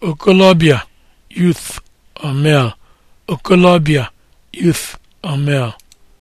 okolobia youth or male okolobia youth or male